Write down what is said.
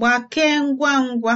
Gbakee ngwa ngwa!